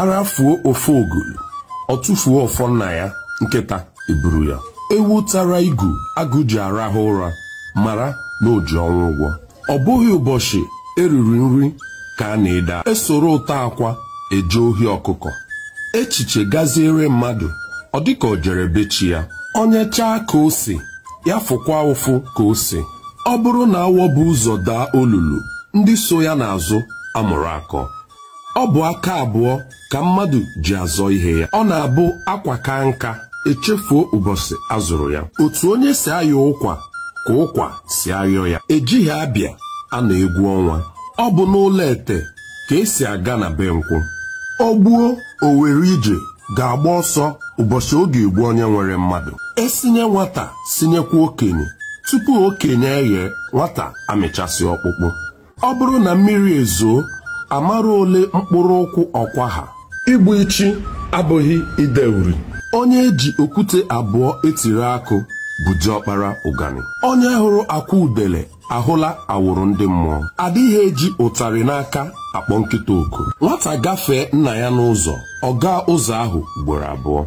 arafuo ofe ogolo ọ tụfuo ọfọ nna ya nkịta eburu ya ewu tara igu agụ ji arahụ ụra mara na oji ọnwụ ụgwọ ọ bụghị ụbọchị eriri nri ka a na-eda esoro ụta akwa eje ohi ọkụkọ echiche gaziere mmadụ ọ dịka ọ jere bechi ya onye chaa ka o ya fụkwa ụfụ ka o si ọ bụrụ na awọ bụ ụzọ daa olulu ndị so ya n'azụ amụrụ akọ ọ bụ aka abụọ ka mmadụ ji azọ ihe ya ọ na-abụ akwa ka nka echefuo ụbọchị azụrụ ya otu onye si ayọ ụkwa ka ụkwa si ayọ ya ejighị abịa a na-egwu ọnwa ọ bụ n'ụlọ ete ka esi aga na be nkwụ ọ gbuo owere ije ga-agba ọsọ ụbọchị oge egbu onye nwere mmadụ esinye nwata sinyekwa okenye tupu okenye eghe nwata amịchasị ọkpụkpụ ọ bụrụ na mmiri ezoo amara ole mkpụrụ ụkwụ ọkwa ha igbu ichi abụghị ide uri onye eji okwute abụọ etiri akụ bụ diọkpara ụgani onye hụrụ akwa udele ahụla awụrụ ndị mmụọ adịghị eji ụtarị n'aka akpọ nkịta oku nwata gafee nna ya n'ụzọ ọ gaa ụzọ ahụ ugboro abụọ